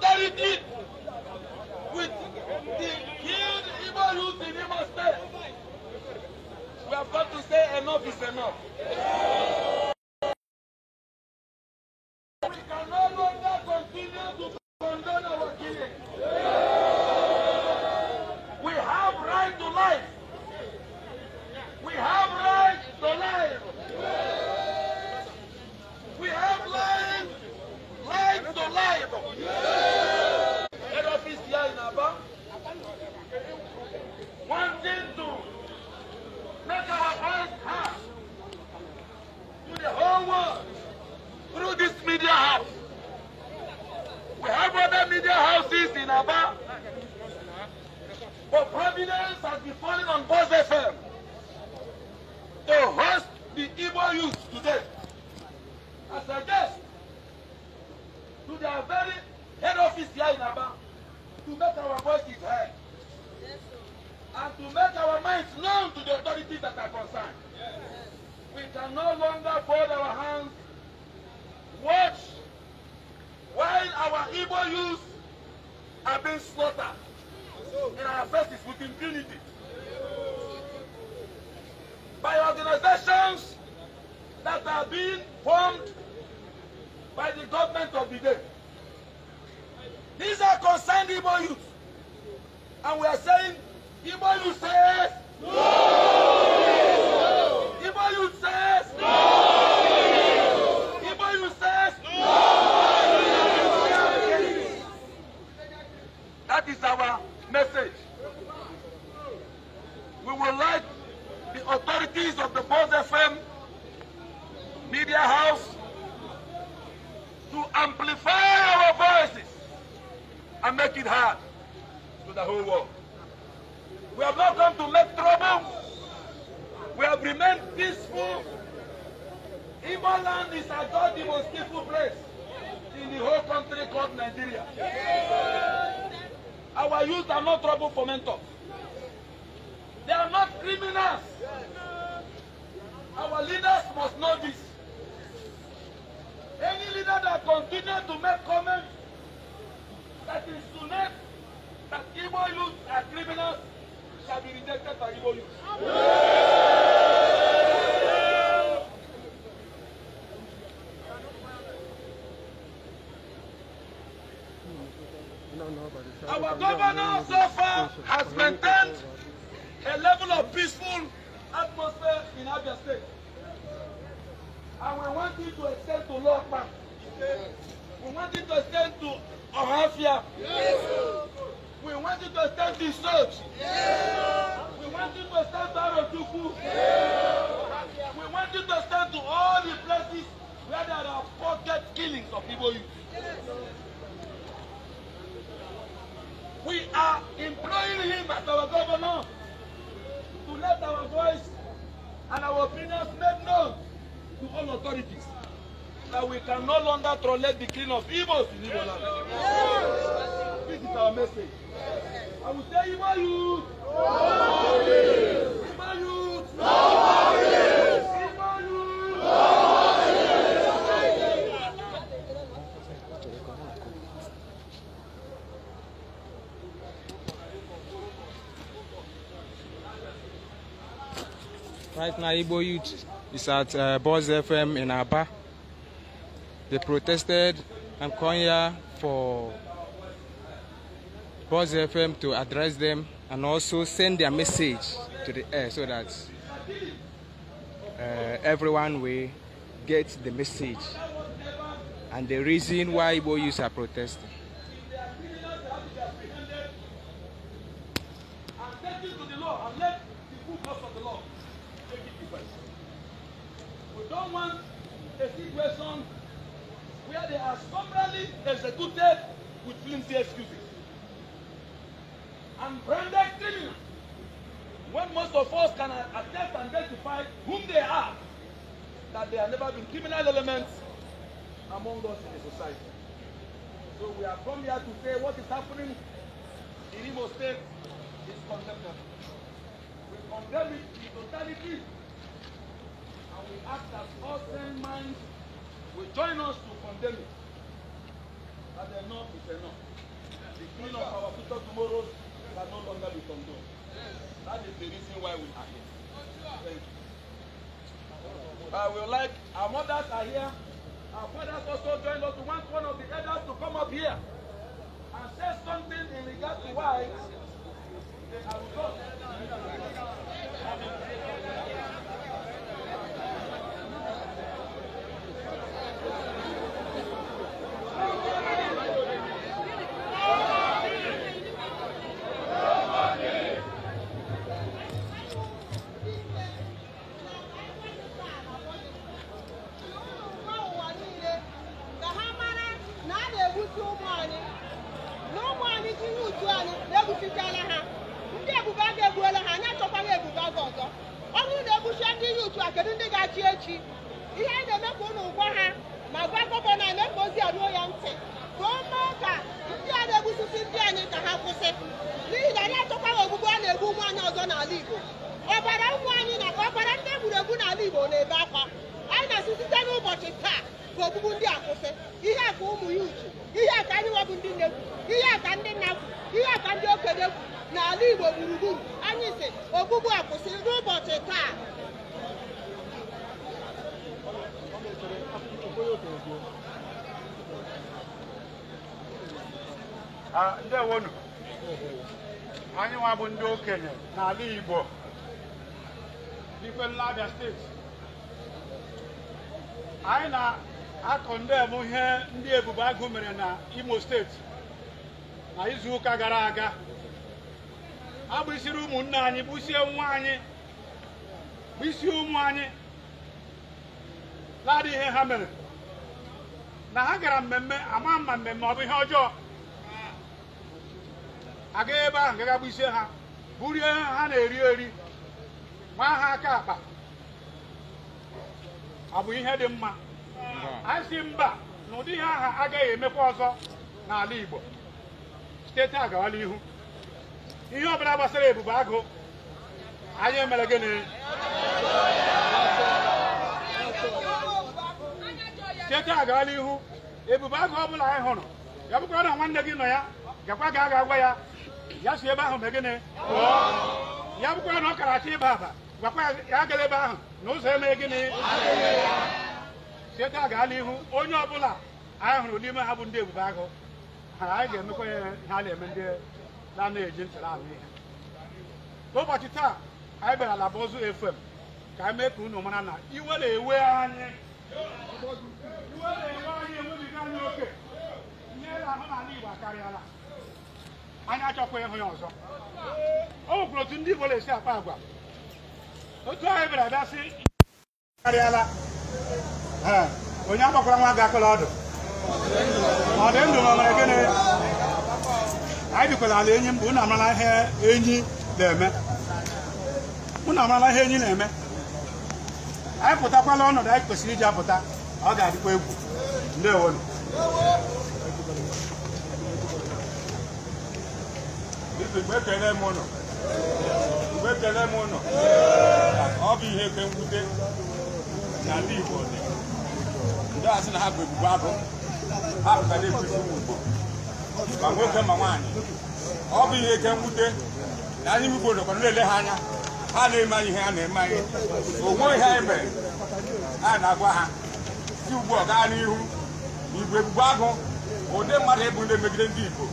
solidarity with the killed Igbo youth in Imo State. We have got to say enough is enough. to their very head office here in Aba to make our voices heard and to make our minds known to the authorities that are concerned. We can no longer fold our hands, watch while our Igbo youths are being slaughtered in our faces with impunity by organizations that are being formed by the government of the day. These are concerned Igbo youth. And we are saying, Igbo youth says no! amplify our voices and make it heard to the whole world. We have not come to make trouble. We have remained peaceful. Igbo land is at God the most peaceful place in the whole country called Nigeria. Our youth are not trouble for They are not criminals. Our leaders must know this leaders that continue to make comments that is to make that Igbo youth are criminals shall be rejected by Igbo youth. Our governor so far has maintained a level of peaceful atmosphere in Abia State. And we want you to extend to Lord Bank. We want you to stand to Ahafia. Yes. We want you to stand to Search. Yes. We want you to stand to Arotuku. Yes. We want you to stand to all the places where there are pocket killings of people. Yes. We are employing him as our governor to let our voice and our opinions made known to all authorities that we can no longer tolerate the killing of evils. in Igbo land. This is our message. I will tell Igbo youth. Igbo youth. No worries. Igbo youth. No worries. Right now, Igbo Youth is at uh, Buzz FM in Aba. They protested. I'm here for Buzz FM to address them and also send their message to the air so that uh, everyone will get the message and the reason why Igbo youths are protesting. don't want a situation where they are summarily executed with flimsy excuses. And branded criminals, when most of us can attest and testify whom they are, that there have never been criminal elements among us in the society. So we have come here to say what is happening in Imo State is contemptible. We condemn it in totality and we ask that all sane minds will join us to condemn it. That enough is enough. The killing of our future tomorrows can no longer be condoned. That is the reason why we are here. Thank you. I will like our mothers are here. Our fathers also join us. We want one of the elders to come up here and say something in regard to why they are with ihe anyị na-eme ka ụlọ gwa ha ma gwa gọvanọ anyị na-ekpe ozi a ruo ya ntị ka o mee ka ndị a na-egbusisi ndị anyị ka ha kwụsị n'ihi na anyị achọkwaghị ogbugbu a na-egbu ụmụ anyị ọzọ n'ala Igbo ọbara ụmụ anyị na ọbara ndị egburu egbu n'ala Igbo na-ebe akwa anyị na-asị site n'ụbọchị taa ka ogbugbu ndị a kwụsị ihe a ka ụmụ ya uchu ihe a ka anyị nwebụ ndị na-egwu ihe a ka ndị nna kwu ihe a ka ndị okenye kwu n'ala Igbo gburugburu anyị si ogbugbu a kwụsịrị n'ụbọchị taa ndewonu anyị nwa bụ ndị okenye n'ala Igbo n'ikpe Nlabia steeti anyị na-akọ ndebụ ihe ndị Ebube Agụ mere na Imo steeti na izuụka gara aga agbụsiri ụmụnne anyị gbusie nwa anyị isi ụmụ anyị ladị ihe ha mere na ha gara mmemme ama mma mmemme ọ bụ ihe ọjọọ aga ebe ahụ gagagbu isi ha burie ha na-eri eri ma ha aka akpa ọ bụ ihe dị mma a mba na ụdị ihe aha agaghị emekwa ọzọ n'ala Igbo steeti a gawa n'ihu ihe ọbụla gbasara ebube agụ anyị emere gịnị cheta agaala ihu ebube agụ ọ bụla anyị hụrụ ya na nwanne gị nọ ya gakwa ga aga agwa ya ya si ebe ahụ mee ya bụkwara na ọ kara achọ ịba aba gwakwa ya agala ebe ahụ na ụzọ eme gịnị cheta agaala ihu onye ọbụla anyị hụrụ n'ime ha bụ ndị ebube agụ anyị ga-emekwa ya ha na-eme ndị na-anaghị eji ntara ahụ ihe ụbọchị taa anyị bịara ala bụ ozu efem ka anyị mee ka unu mara na iwe na ewe anyị iwe enwe anyị oke ihe Igbo akarịala anyị achọkwa ịhụ ya ọzọ o nwekwara otu ndị Igbo na-esi akpa agwa otu ahụ bịara bịa sị karịala onye agbakwara nwa ga akụla ọdụ ọ dị ndụ ọ gịnị anyị bikwara ala enyi mbụ unu amarala ihe enyi na-eme anyị pụtakwala ọnọdụ anyị kwesịrị iji apụta ọ ga-adịkwa egwu ndewonu mgbe ekele m ụlọ ọ bụ ihe ke mwute na ndị Igbo dị ndị asị na ha bụ ebubo abụ ha pụtara ebufe ụmụ Igbo ma nwoke ma nwaanyị ọ bụ ihe ke mwute na anyị Igbo nọkwa na-ele ha anya ha na-eme ihe ha na-eme anyị onwe ihe anyị mere a na-agwa ha si ugbu ọ gaa n'ihu igwe gbugbu agụ ụdị mmadụ ịbụ ndị megide ndị igbo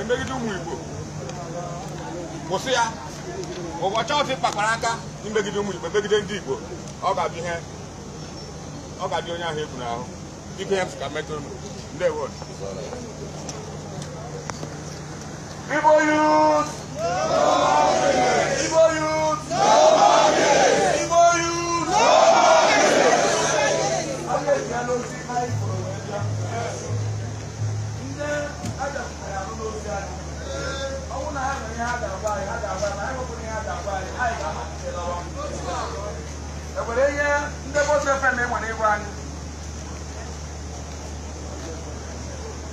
emegide ụmụ igbo kwụsị ya ụbọchị ọtị ịkpakpara aka imegide ụmụ igbo emegide ndị igbo ọ ga-abụ ihe ọ ga-adị onye ahụ egwu n'ahụ dịka ihe m ka metụ unu ndewo Igbo youth!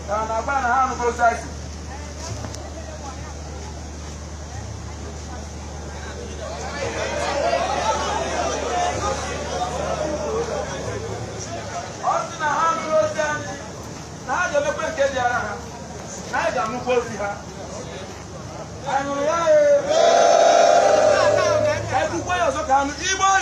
na na-agba na ha anụgo saịsị ọ sị na ha anụrụ ozi anyị na ha ga-emekwe nke dị ara ha na anyị ga-anụkwa ozi ha anyị nụrụ ya